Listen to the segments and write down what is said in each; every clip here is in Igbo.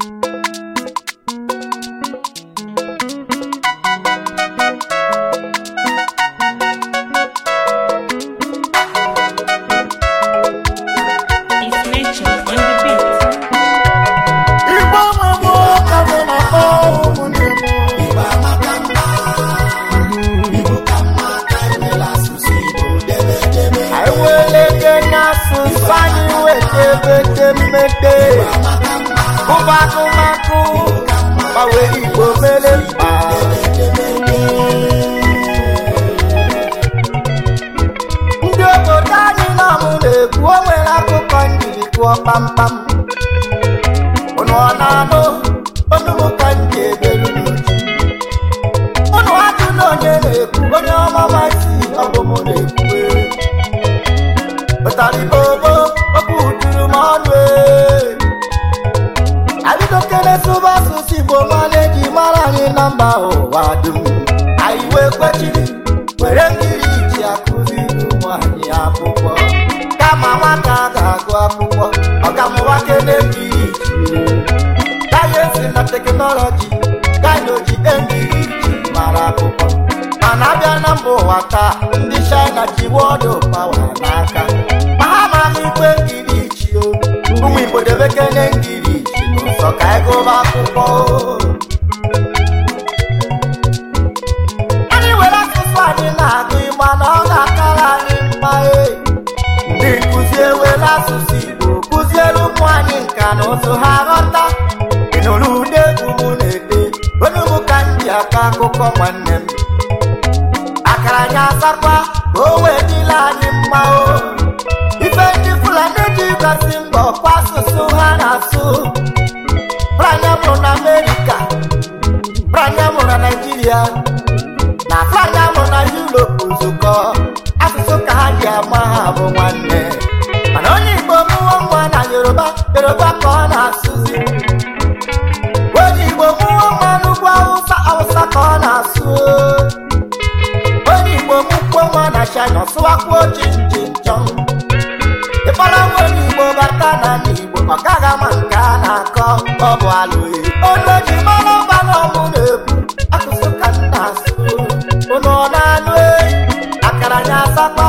thank you ụba akụmakụ gbanwe igbo mere mkpa ndị obodo anyị nọmụ na-ekwu o nwere akụkọ njiri tụọ kpamkpam ụnụ na-anụ mba nkụzi kụziewela asụsụ Igbo kụzielu ụmụ anyị nka na ụzụ ha ghọta ị nụrụ ude egwu na-ede onye mụ ka m ji akọ akụkọ nwanne m akara anyị asakwa ka o wee dịla anyị mma ga ha bụ nwanne mana onye Igbo mụọ nwa na Yoruba Yoruba ka ọ na-asụzi onye Igbo mụọ nwa n'ugwu Awụsa Awụsa ka ọ na-asụ onye Igbo mụkwo nwa na China sụwakwuo chinchịnchọn ịkpọrọ nwa onye Igbo bata na Igbo ọ gaghị ama nke a na-akọ ọ bụ alụghị olu ji mara ọba na ọmụ na-ebu akụsụ ka nna asụ ọ na-anụ akara nya asakpa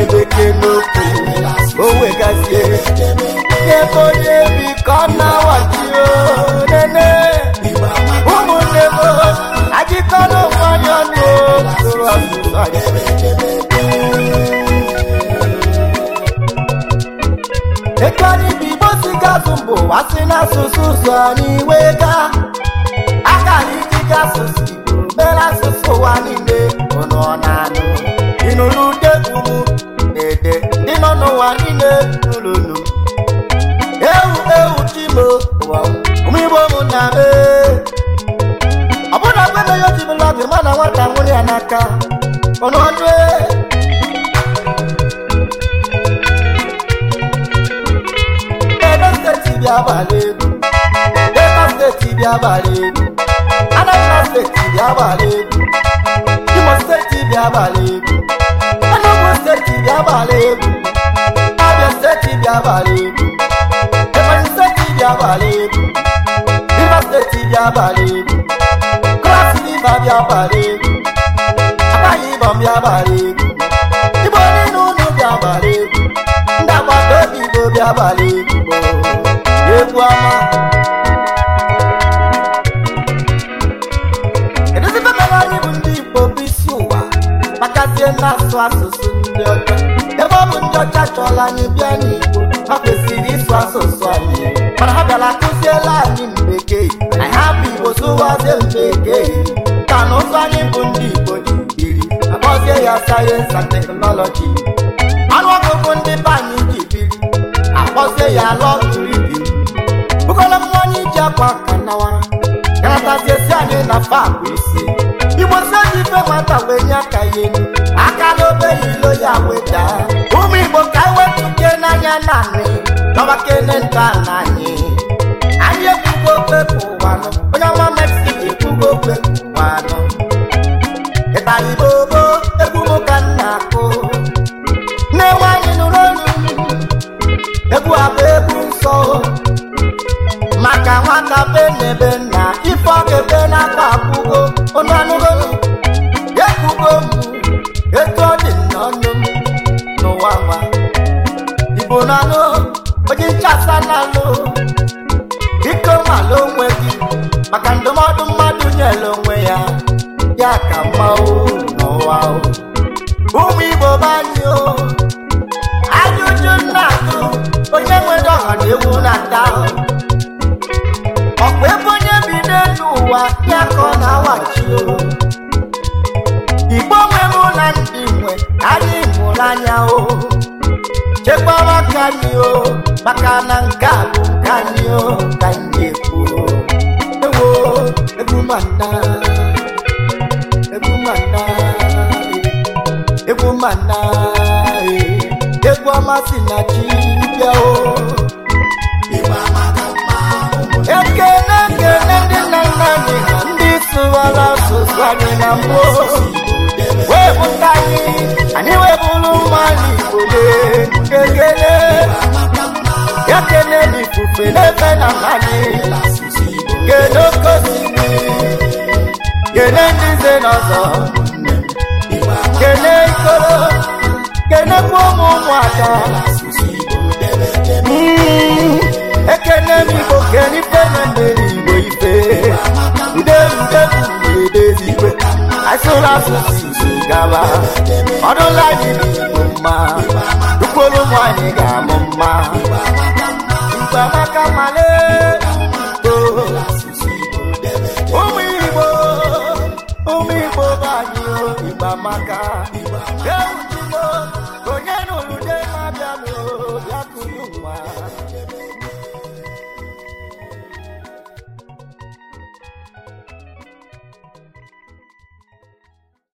m o wegazie ebe onye bi ka na-awachio nene ụmụnne m ajịkọla mmanya ọnụ tụrụ anyị ekarịbụ igbo mbụ wasị n'asụsụ ụzọ n'iwe gaa Ema na nwata nwụrụ na n'aka ọnụ n'ọnụ e. Edo steeti bịa abalị egwu Delta steeti bịa abalị egwu Anambra abalị Imo abalị abalị abalị abalị ọbịa gbara egwu agaghị ịba ọbịa gbara egwu igbo niile ụlọ ụbịa gbara egwu ndị agbata obi igbo bịa gbara oh, egwu egwu ọma edozibe mere anyị bụ ndị igbo bụ isi ụwa makazie na-asụ asụsụ ndị ọcha ebe ọ bụ ndị ọcha chọrọ anyị bịa n'igbo ha kwesịrị ịsụ asụsụ anyị mana ha bịara akụziela anyị mbekee anyị hapụ igbo sụwazie mbekee mana otu anyị bụ ndị Igbo ji biri agọzie ya sayensị and teknọlọji anụ ọgụgụ ndị be anyị ji biri akpọzie ya lọtụribi bụkọla m onye ji akwa ka nawara garataziesi anyị na fabụ isi igbo si oji ife nwata wee nye aka ya elu aka n'obe ya ilo ya weta ụmụ igbo ka anyị wepụ ike n'anya naanị dọbakene ndụ na anyị anyị ekwugo okwe bụ ụwa onye ọma meksiko ekwugo okwe anọ ịtara igbo egwu ka nna akụ na-enwe anyị nụrụ olu egwu abụ egwu nsọ maka nwata be na ebe nna ife ọ ga-ebe n'aka akwụgo ekwugo m etu ọ dị n'ụwa nwa igbo onye nchasa na ya ya ka mmanwụ n'ụwa ụmụ igbo anyị o anya uju nna atụ onye nwere ọha na ewu na-ata ahụ ọkwa ebe onye bi n'elu ụwa ya ka ọ na-awachi o igbo nwere na ndị nwe anyị mụrụ anya o chekwara ka anyị o maka na nke a bụ nke anyị o ka anyị ekwuo ewo ebu mana eh. egwu ọma si na chi bịa o ekele ekele ndị nna nna anyị ndị sụwara asụsụ anyị na mbụ wee pụta anyị anyị wee bụrụ nwa n'igbo ekele eh. ya kele n'ifufe n'ebe na anyị kedu okosimiri eh. kele ndị nze n'ọzọ kene ikoro kenekwa ụmụ ụmụaka ekene m igbo kene ife na mmeri igbo ife ideudeudezigwe asụrụ asụsụ gaba ọdụla anyị igbo mma ukwuru ụmụ anyị ga-amụ mma igbo amaka male amaka eutumo onye nụrụ de na ya bịakụrụ nwa